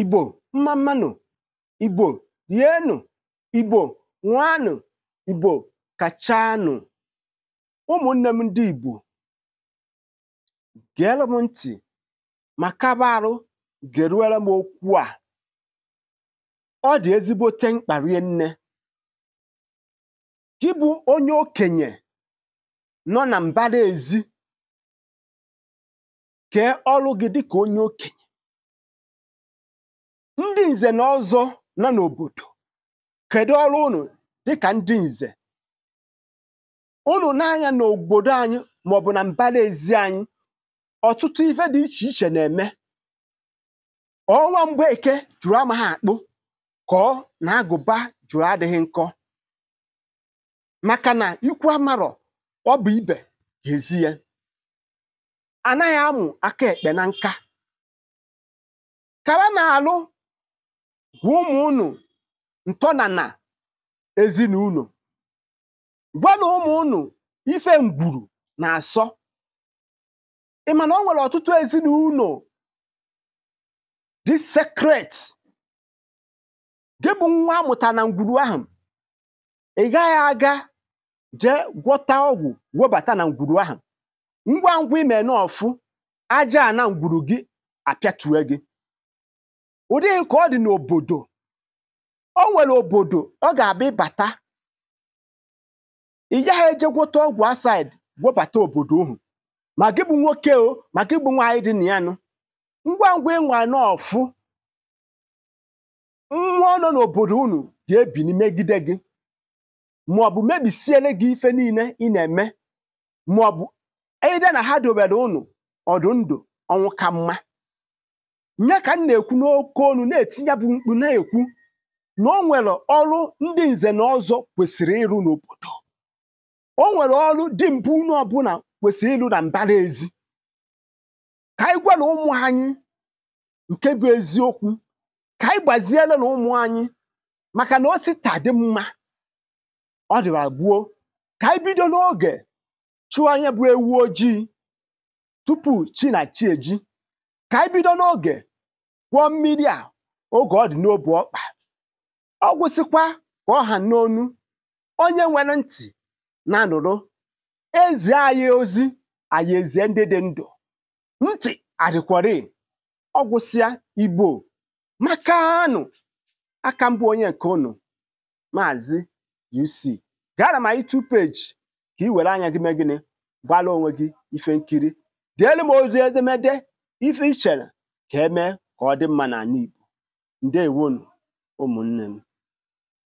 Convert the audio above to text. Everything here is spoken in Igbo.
Igbo mmammanụ, Igbo rienụ, Igbo nwanụ Igbo kachanụ. Ụmụnne m ndị Igbo geelụ m ntị ma kaba arụ geruere m okwu a ọ dị ezigbote mkpa nne gị bụ onye okenye nọ na mbara ezi kee ọrụ gị dị ka onye okenye ndị nze na ọzọ nọ n'obodo kedu ọrụ unu dịka ndị nze unu n'anya n'obodo anyị maọbụ na mbara ezi anyị ọtụtụ ife dị iche iche na-eme ọnwa eke jụrụ amaghị akpụ kọọ na agụba jụrụ adịghị nkọ maka na ikwu amarọ ọ bụ ibe ga-ezi ya anaghị amụ aka ekpe na nka kara na alụ gwa ụmụ unu ntọnana ezinụlọ gwana ụmụ unu ife ngwuru na-asọ ị mana na o nwere ọtụtụ ezinụlọ dị sekret gị bụ nwa amụta na ngwuru ahụ ị gaghị aga jee gwọta ọgwụ webata na ngwuru ahụ ngwa ngwa ime aja na ngwuru gị apịatue gị ụdị nke ọ dị n'obodo o nwere obodo ọ ga-abịa ịbata ị gaghị ejegwota ọgwụ asaid gwobata obodo ohu ma gị bụ nwoke o ma gị bụ nwaanyị dị na ya nụ ngwa ngwa ịnwa n'ọfụ mmụọ nọ n'obodo unu ga ebi n'imegide gị ma ọ bụ mebisiele gị ife niile ị na-eme ma ọ bụ ede na ha dobere unu ọdụ ndụ ọnwụ ka mma nya ka m na-ekwu n'oke olu na-etinye bụ mkpu na-ekwu na o nwere ọrụ ndị nze na ọzọ kwesịrị ịrụ n'obodo o nwere ọrụ mpụ unu ọbụla kwesịrị ịlụ na mbara ezi ka anyị gwara ụmụ anyị nke bụ eziokwu ka anyị na ụmụ anyị maka na osita dị mma ọ dịra gbuo ka anyị n'oge chụọ anya bụ ewu ojii tupu chi na chi eji ka anyị n'oge kwụọ mmiri a oge ọ dị n'obu ọkpa ọ gwụsịkwa ka ọ ha n'onu onye nwere ntị na-anụrụ ezi anyị ozi anyị ezie ndị dị ndụ ntị adịkwari ọ gwụsịa igbo makanụ aka mbụ onye nke unu maazị UC gara m anyị tu peji ka ị were anya gị mee gịnị gbala onwe gị ife nkiri elu m ozi edemede ife ichere ka emee ka ọ dị mma n'ala Igbo ndewonu ụmụnne m